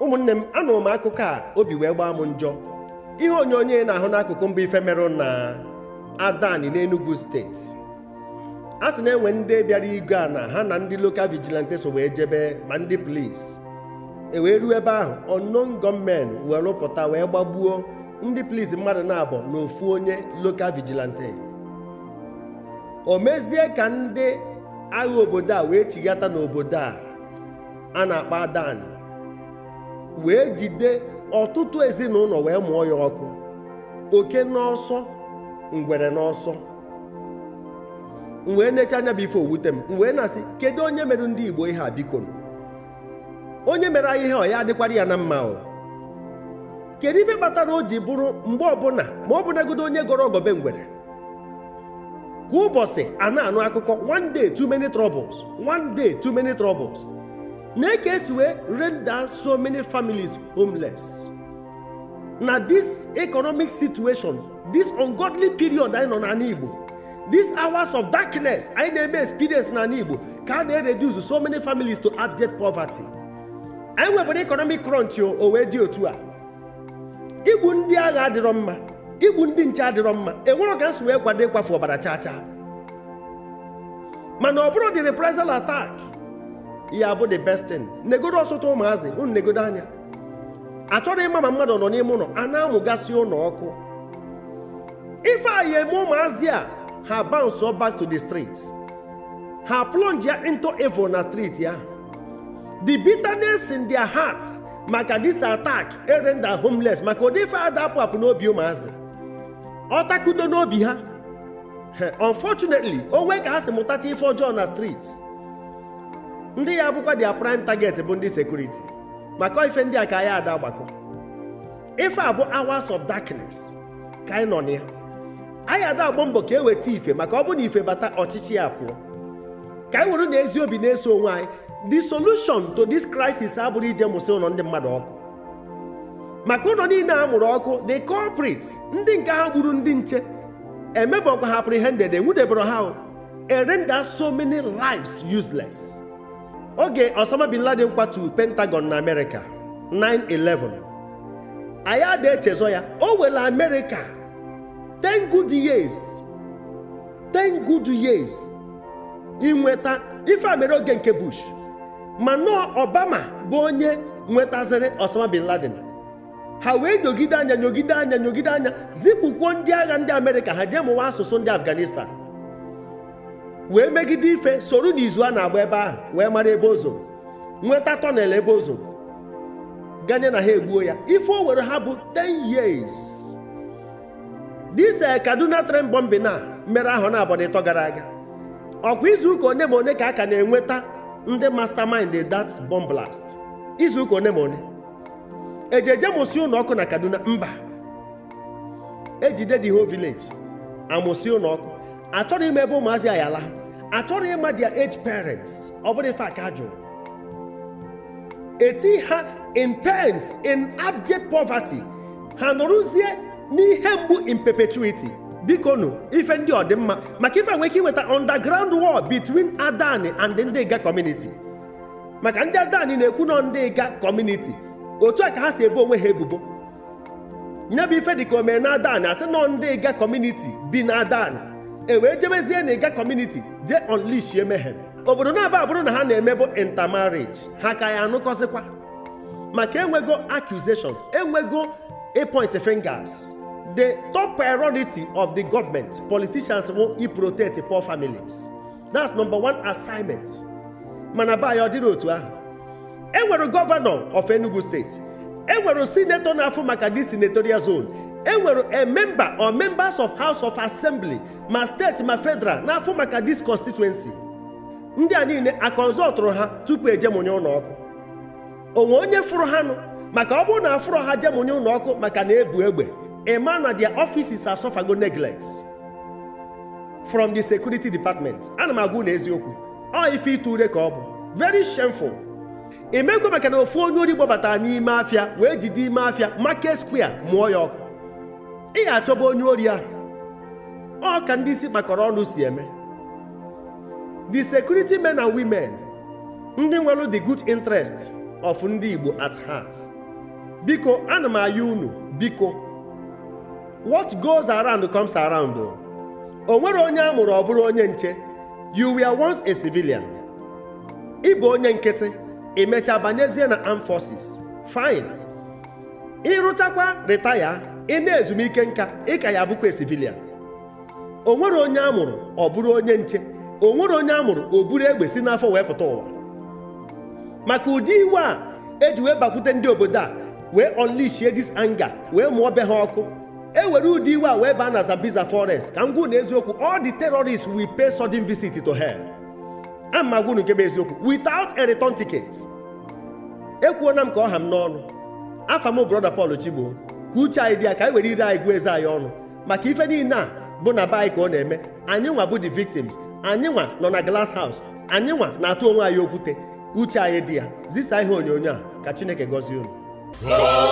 ụmụnne m anụrụ m akụkọ a obi wee gbaa m njọ ihe onyonyo na-ahụ n'akụkụ mba ife merụ na adani n'Enugu steeti a sị na-enwe ndị bịara igwe a na ha na ndị lokal vigilante so wee jebe ma ndị polisi e wee ruo ebe ahụ unknown gunmen wee rụpụta wee gbagbuo ndị polisi mmadụ na-abụ n'ofu onye lokal vigilante o mezie ka ndị agha obodo a wee chighata n'obodo a a na-akpọ adani wee jide ọtụtụ ezinụlọ wee mụọ ya ọkụ oke n'ọsọ ngwere n'ọsọ wee e necha anya bụ ife owute m wee e na-asị kedu onye mere ndị Igbo ihe a biko onye mere anyị ihe ọ ya adịkwara ya na mma o kedu ife kpatara o ji bụrụ mgbe ọbụla ma ọ bụnagodo onye gọrọ ọgọbe ngwere kwa ụbọchị a na-anụ akụkọ one day too many troubles one day too many troubles na eke esi wee render so many families homeless na this economic situation this ungodly period anyị nọ na igbo this hours of darkness anyị na-eme experience n'ala igbo ka a na-reduce so many families to abject poverty anyị nwebere economic crunch o wee dị otu a igbu ndị agha adịrọ mma igbu ndị nche adịrọ mma enwere ka nsị wee kwado ịkwafu ọbara chacha mana ọ bụrụ the reprisal attack ya bụ the best thing negodo ọtụtụ ụmụazị unu negodo anya achọrọ ịma ma mmadụ nọ n'ime ụlọ a na-amụgasị ụlọ ọkụ ife eme ụmụazị a ha bounce back to the street ha plunge ya into evil na street ya the bitterness in their hearts maka this attack erenda homeless maka ụdị ife a dapụ apụ n'obi ụmụazị ọ n'obi ha unfortunately o nwee ka ha si mụtacha ife ọjọọ na street ndị ya bụkwa dia prime target bụ ndị sekuriti maka ife ndị a ka ya ada gbakọ ife a bụ hours of darkness ka anyị nọ na ya anyị ada agbọ mbọ ka e ife maka ọ bụrụ na ife bata ọchịchị ya pụọ ka anyị were na ezi obi na-eso onwe anyị the solution to this crisis abụrụ ije mụsị ụlọ ndị mmadụ ọkụ maka ụlọ niile a mụrụ ọkụ the culprits ndị nke ha gburu ndị nche emebọkwa ha apprehended enwudebere ha erenda so many lives useless oge Osama bin Laden kwatu Pentagon na Amerịka 9/11 anyị ada echezọ ya o nwere Amerịka 10 good years 10 good years inweta ife mere oge nke Bush ma nọọ Obama bụ onye nwetaziri Osama bin ha wee nyogide anya nyogide anya nyogide anya zipụkwuo ndị agha ndị Amerịka ha jee mụwa asụsụ ndị Afghanistan wee megide ife soro n'izu a na-agba ebe ahụ wee mara ebe ozo nweta tọnel ebe ozo ganye na ha egbuo ya ife o were ha bụ 10 years dis eh, kaduna tren bọmbi na mere ahụ na ịtọ gara aga ọkwa izuụka one ma one ka a ka na-enweta ndị mastermind that bomb blast izuụka one ma one ejeje mụsị ụlọ na kaduna mba ejide dị ho village amụsị achọrọ ime ebe ụmụazị a achọrọ ịma their age parents ọ bụrụ ife aka jụrụ eti ha in pains in abject poverty ha nụrụzie n'ihe mgbu in perpetuity biko nụ ife ndị ọdịmma maka ife nwere ike iweta underground war between adani and ndị ịga community maka ndị adani na-ekwu nọ ndị ịga community otu a ka ha si ebe onwe ha ebubo nye bụ ife dịka omee na adani asị nọ ndị community bi na adani e wee jebezie na ịga kọmuniti jee onlishie mehem obodo na-aba abụrụ na ha na-eme bụ intermarriage ha ka ya anụkọzikwa maka enwego accusations enwego point fingers the top priority of the government politicians wo i protect poor families that's number one assignment mana baya ọ dịrị otu ahụ enwere gọvanọ of Enugu steeti enwere sinetọ na-afụ maka dị senatorial zone enwere a eh, member or members of house of assembly ma steeti ma federal n'afọ maka dis constituency ndị a niile akọnzọtụrụ ha tupu ejemụnye ụlọ ọkụ onwe onye fụrụ ha nụ maka ọ bụrụ na afụrụ ha jemonye ụlọ maka na ebu egbe ema na their offices are go neglect from the security department ana m agwụ na eziokwu ọ ife ite ure ka ọ bụ very shameful emekwa maka na ofu onye ori gbabata n'ime afịa wee jide ime afịa market square mụọ ya ọkụ ị ga-achọba onye ori ahụ ọ ka ndị isi kpakọrọ ọnụ si eme the security men and women ndị nwere the good interest of ndị Igbo at heart biko ana m ayọ unu biko what goes around comes around o nwere onye a mụrụ ọ bụrụ onye nche you were once a civilian ịbụ onye nkịtị emecha banyezie na armed forces fine ịrụchakwa ritaya ị na-ezumike nka ị ka ya abụkwa sivilia o nwere onye amụrụ ọ bụrụ onye nche o nwere onye amụrụ o buru egbe si n'afọ wee pụta ụwa maka ụdị iwe a eji wee bakwute ndị obodo a wee unleash dis anga wee mụọ be ha ọkụ e were ụdị iwe a wee baa na Zambiza forest ka m gwuo na eziokwu all the terrorists will pay sudden visit to hell ama gwunu nke bụ eziokwu without a return ticket ekwuona m ka ọ ha m n'ọnụ afa m brọda Pọl Chigbo ka uche anyị dị ya ka anyị were ire anyị gụọ eze anyị ọnụ maka ife niile a bụ na be ka ọ na-eme anyị nwa bụ the victims anyị nwa nọ na glass house anyị nwa na-atụ onwe anyị okwute uche anyị dị ya zisa ihe onyonyo a ka Chineke gọzie unu